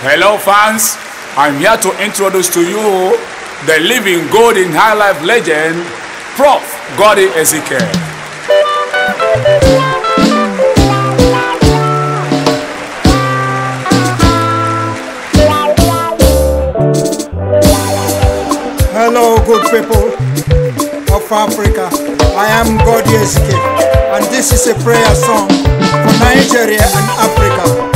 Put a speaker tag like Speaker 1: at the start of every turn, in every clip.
Speaker 1: Hello, fans. I'm here to introduce to you the living golden in high life legend, Prof. Gordy Ezekiel.
Speaker 2: Hello, good people of Africa. I am Gordy Ezekiel, and this is a prayer song for Nigeria and Africa.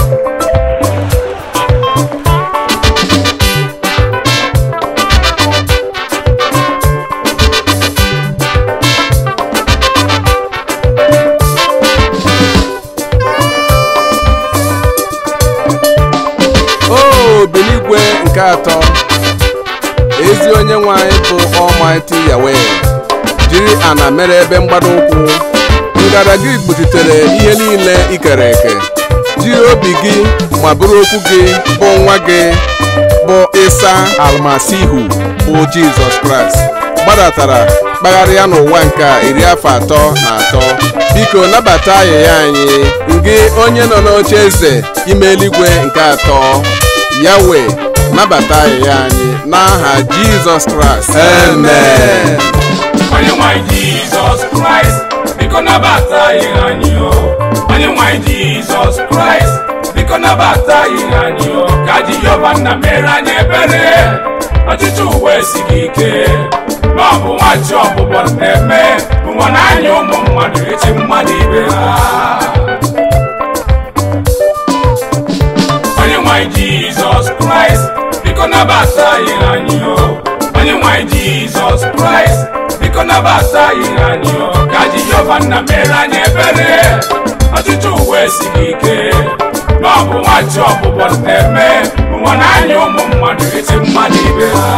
Speaker 3: nke atọ ezi onye nwe anyị bụ Almighty Yahweh jiri ana mere ebe mgbada ụkwụ gị gbochitere ihe niile ikere eke jiri obi gị ma bụrụ okwu gị bụ nwa gị bụ ịsa Almasihu bụ Jizọs Kraịst gbadatara kpagharịa n'ụwa nke iri afọ atọ na atọ biko nabata ayịya anyị gị onye nọ n'oche eze ime eluigwe nke atọ yawe nabata ahịhịa anyị n'aha jizọs kraịst amen
Speaker 1: jizọs kraịst biko nabata anyị anyị o ka nna mere anyị ebere ọchịchị ụwa gị ike ma ọ bụ nwachi ọbụbọ na-eme ụwa ụmụ mmadụ mmadụ ibe ha biko nabasa anyị anyị o onye nwanyị jizọs kraịst biko nabasa anyị anyị o ka jehova nna mere anyị ebere ọchịchị uwe siri ike ma ọ bụ nwachi ọbụbọ na-eme nwa na anya ụmụ mmadụ eti mmadụ ibe ha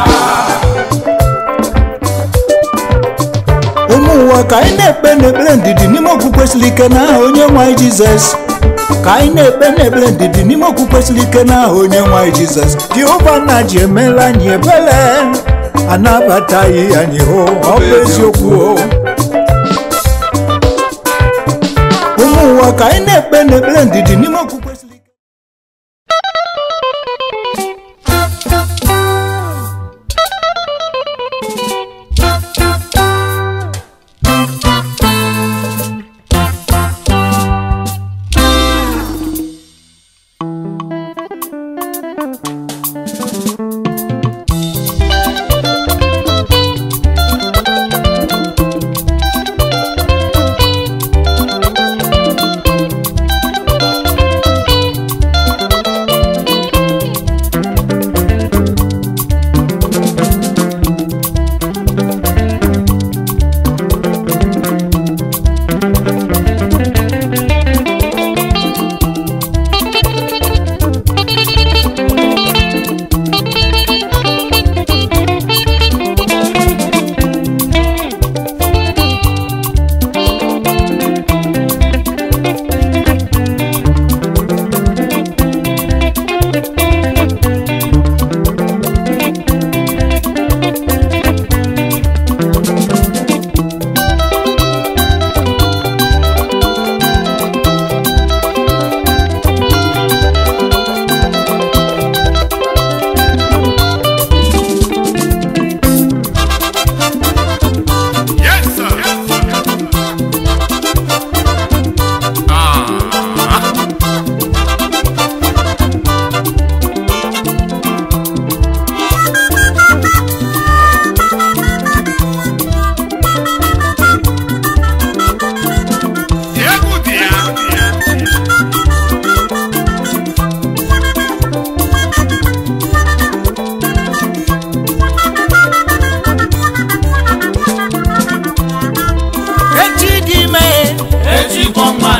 Speaker 2: ụmụ ụwa ka anyị na-ekpe n'ekpere ndidi n'ime okwukwe siri ike n'aha onye nwanyị jizọs ka anyị na-ekpe na-ekpere ndidi n'ime okwu kwesịrị ike na aha onye nwanyị jizọs jehova na ji emela anyị ebere anabataghị anyị hụ ọ bụ eziokwu o ụmụ ụwa ka anyị na-ekpe na-ekpere ndidi n'ime okwu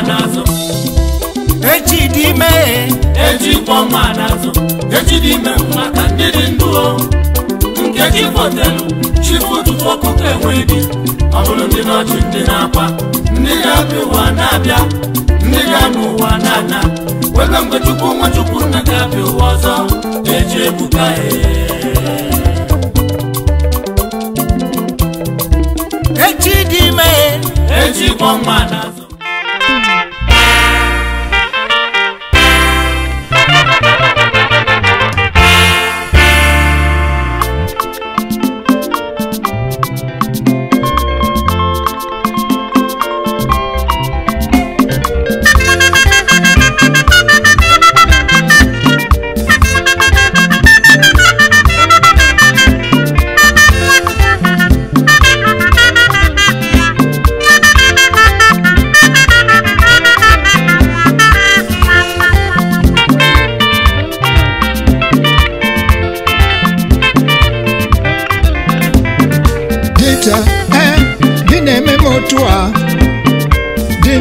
Speaker 2: n'azụ echi dị ime echi kpọ nwa n'azụ echi dị ime
Speaker 1: maka ndị dị ndụ nkechi fotelu chifu ụtụtụ ọkụkọ enweghị ọ bụrụ ndị nọchi ndị na-akwa ndị ga-abịa ụwa na-abịa ndị
Speaker 2: ga-anụ ụwa na-ana webe mgbe chukwu nwa chukwu nna ga-abịa ụwa ọzọ eji ebuka e. echi dị ime echi kpọ nwa n'azụ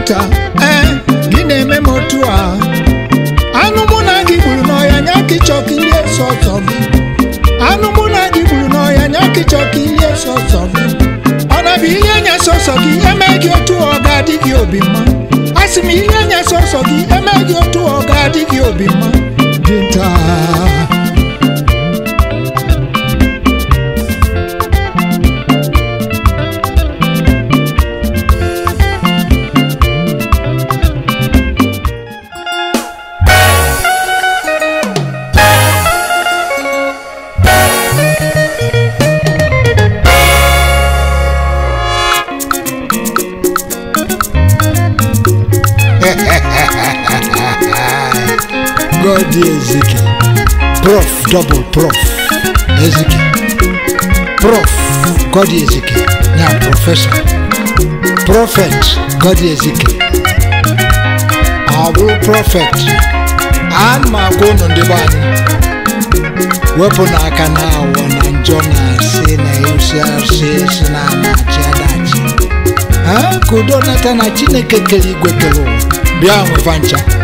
Speaker 2: nta ee eh, na-eme m otu a anụ mụ na gị gburu n'ọhịa nya ka ịchọka ili eso gị anụ mụ na gị gburu n'ọhịa nya ka ịchọka ọsọ gị ọ na-abụ ihe nya sọsọ gị eme gị otu ọ ga-adị gị obi mma m ihe nya sọsọ gị eme gị otu ọ ga-adị gị obi mma Chimamandi Ezike prof double prof Ezike prof Godi Ezike na prọfesọ prọfet Godi Ezike ọ bụ prọfet ana m agwa ụnụ ndị be anyị wepụ n'aka na awọ na njọ na-asị na eusiasị si na anachi adachi ka udo nata na Chineke kere igwe kere ụwa bịa nwefa ncha